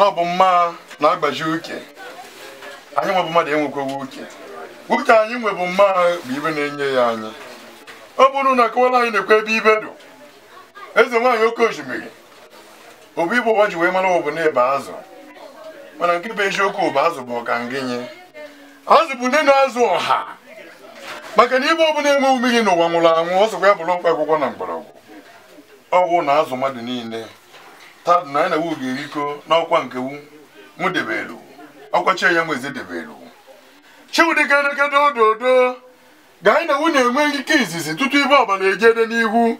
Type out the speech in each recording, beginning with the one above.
na ọ bụ mma na-agbaji uke anyị nwebụ mmadụ enwekwewe uke uke anyị nwebụ mma bụ ibe na-enye ya anyị ọ bụrụ na akọwala anyị na-ekwe ebe ibe dụ eze nwaanyị oke osimiri obu igbo ụwa ji wee mara ụbụ na-ebe azụ mana nke bụ eziokwu bụ azụ bụ ọkangịnye azụ bụ nne na-azụ ọha maka na ibe ọbụla enwe mmiri n'ụwa nwụrụ anwụ ọ sokwa ya bụrụ mkpa akwụkwọ na mgbọrọgwụ ọgwụ na azụ mmadụ niile tadụ na anyị na wu ga eriko n'ọkwa nke wu mụ debelu ọkwa chi ya nweze debelu chiwudịkenekedododo ga anyị na wu na-enwe ike izizi tutu ibe ọbala ejede n'ihu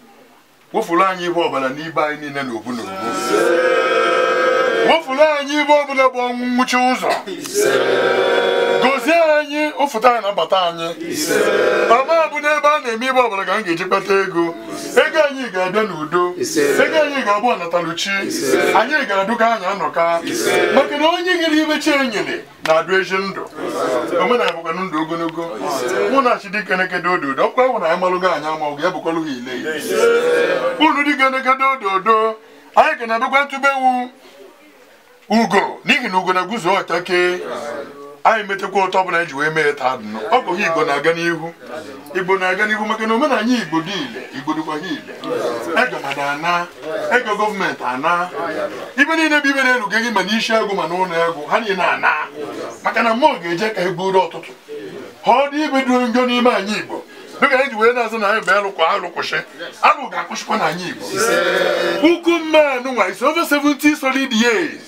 wụfuru anyị ibe ọbala n'ibe anyị niile na obu na wụfuru anyị ibe ọbụla bụ ọnwụ nwụchi ụzọ mkpọfụta anyị na-abata anyị ọma bụ n'ebe a na-eme ibe ọbụla ka m ga-eji kpata ego ego anyị ga-abịa n'udo ego anyị ga-abụ ọnataluchi anyị ga-adụga anyị anọka maka na onye nyere ibe chi enyere na-adụ ezi ndụ omenala bụkwa ndụ ogologo mụ na chidikenekedo ododo ọkwa ahụ na anyị malụgo anyị amaghị ya bụkwalụ ha ile unu dikenekedo ododo anyị ga na-abịakwa ntụbewu ugo n'ihi na ugo na-eguzo ọchake anyị metakwa ụtọ ọbụla anyị e ji wee mee taa nọ ọ bụghị igbo na-aga n'ihu igbo na-aga n'ihu maka na omenanya igbo dị ile igbo dịkwa ha ile ego mada ana ego gọọmenti ana ibe niile bụ ibe na elu gị ma n'isi ego ma n'ụlọ agụ ha niile ana maka na mmụọ ga-eje ka egburu ọtụtụ ha ọ dị ibe dị n'ime anyị igbo dịka anyị ji wee na-azụ na anyị bụ alụkwa alụkwụsị alụ ga-akwụsịkwa na anyị igbo puku mmanụ nwa is over 70 solid years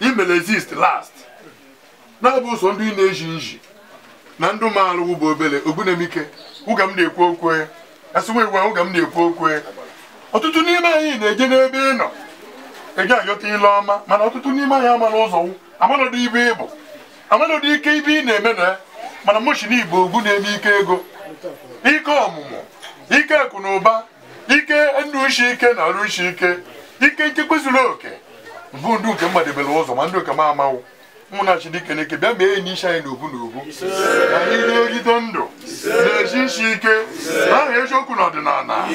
he may exist last na-abụ ụzọ ndị na-eji nji na ndụ maalụ wụ bụ obere ogbunamike ụga m na-ekwu okwu asịwa iwu ụga m na-ekwu okwu ọtụtụ n'ime anyị na-eje n'ebe ị nọ ị ga-ayọta ile ọma mana ọtụtụ n'ime anyị amara ụzọ amanọdụ ibe ịbụ amanọdụ ike ibe ị na-eme na mana moshi na igbo ogbu na-eme ike ego ike ọmụmụ ike akụ ike ndụ uche ike na arụ uche ike ike nchekwa oke mbụ ndụ nke mmadụ ebere ụzọ ma ndụ nke m amawụ ụmụnna Chineke na-eke bịa mee enyi isi anyị n'obu n'obu ka anyị na-egide ndụ na-esi isi ike n'aha eziokwu na ọdịnala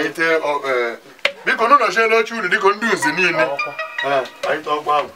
e e, biko nụ nọchie unu dịka ndị nzi niile e, ọgba ahụ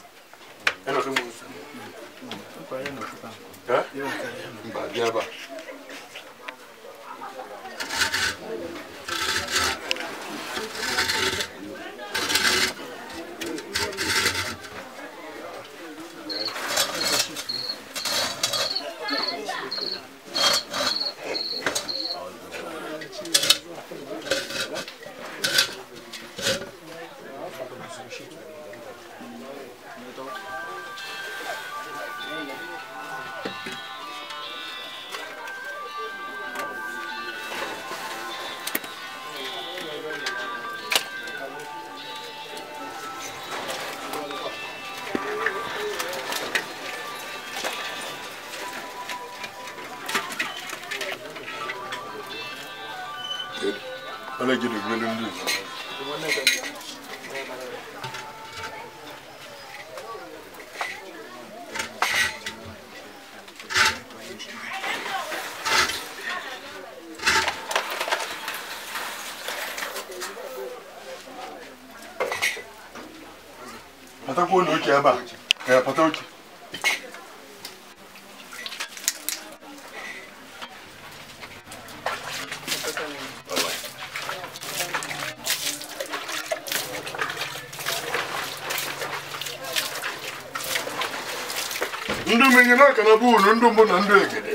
Good. I like you to really lose. Patakwa na oche ebe a, pata ndụ mụ nyere aka na bụụlụ ndụ mbụ na ndụ ekede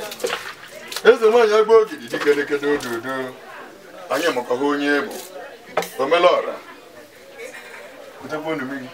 eze nwaanyị agba ogidi dikedekede ododo anya makwa ha onye bụ omelọra ụtakwa ndụ mụ gị